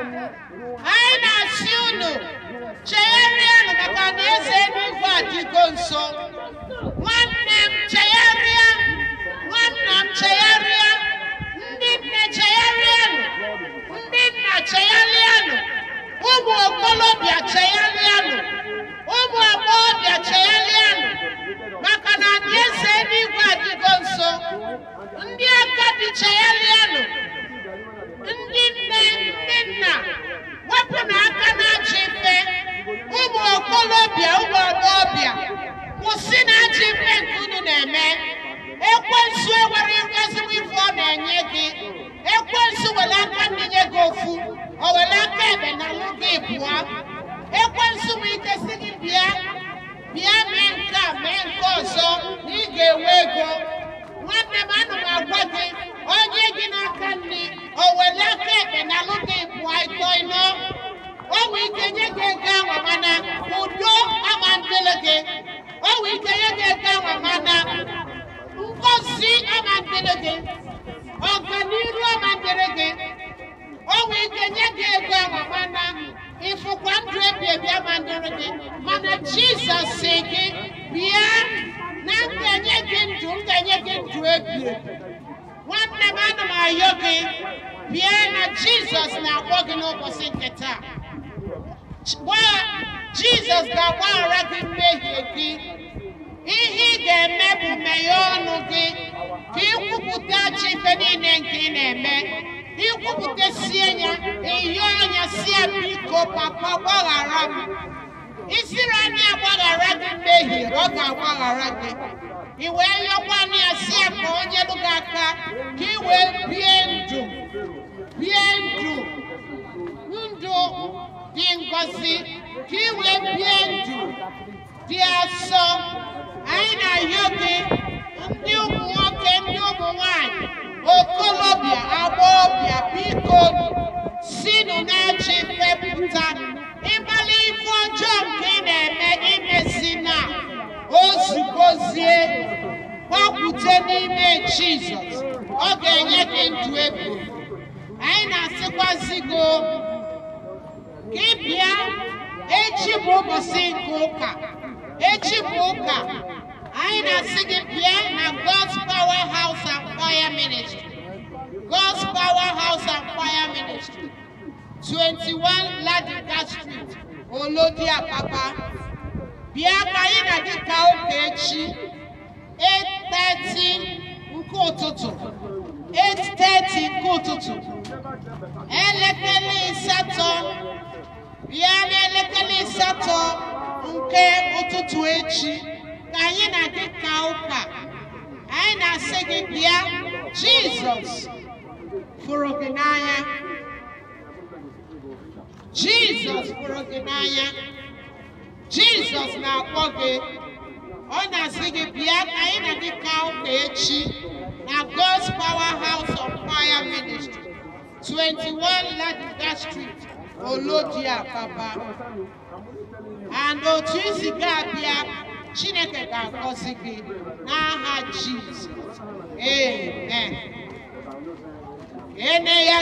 anyị na-achị unu maka na eze eluigwe adịgo nso nwanne m chegharịa nwanna m chegharịa ndị nne chegharịanụ ndị nna chegharịanụ ụmụ okolobịa chegharịanụ ụmụ agbọghọbịa chegharịanụ maka na eze eluigwe adịgo nso ndị agadi chegharịanụ ndị nne nna wepụ n'aka n'ajọ ife ụmụ okolobịa ụmụ agbọghọbịa kwụsị n'ajọ ife nke unu na-eme ekwensu enwere ezigbo ife ọ na-enye gị ekwensu were aka nninye gị ofu o were aka ebe na lụ gị pụọ ekwensu nwee ike si gị bịa bịa mee nke a mee nke ọzọ na ị ga-enwe ego gị ọganiru ọma dịrị gị o nwee ike nye gị ego anwamana ịfụkwa ndụ ebi ebi ama dịrị gị mana jizọs si gị bịa na m gị ndụ m ga gị ndụ ebi nwanne m ana m ayọ gị bịa na jizọs na-akpọ gị n'ụbọchị nke taa jizọs ga-agbaghara gị mmehie gị ka ikwupụta chi ife niile nke ị na-eme ikwupụtasie ya eyo anya si ya biko papa gbaghara m isiri anya agbaghara gị mmehie ọ ga-agbaghara gị i wee yọkwa anya ya si ya ka onye lụ gị aka ka i wee bie ndụ bie ndụ ndụ dị ngọzi ka i wee bie ndụ dị asọ anyị na-ayọ gị ndị ụmụ okolobịa agbọghọbịa biko sinụ na-achị fepụta ịkpali ife ọjọọ nke ị na-eme imesi na ozugozie gbakwute n'ime jizọs ọ ga-enye gị ndụ ego anyị na-asịkwazi gị gị bịa echi bụ ụbọchị nke ụka echi bụ ụka anyị na-asị gị bịa na God's Power House Prayer Ministry, God's Powerhouse and Fire Ministry, 21 Ladika Street, Olodi Apapa, Biakayin Adika Okechi, 8:30 nkú òtútù, 8:30 nkú òtútù, elekere asatọ, bịa n'elekere asatọ nke ụtụtụ echi ka anyị na-adị ka ụka, anyị na-asị gị bịa. Jesus. Furokinaya. Jesus Furokinaya. Jesus na-akpọ gị. Ọ na-asị gị bịa ka anyị na gị ka ụka God's powerhouse of Fire Ministry, 21 Ladida Street, Olodia Papa. And otu oh, isi chineke ga-agọzi gị n'aha jizọs amen ene ya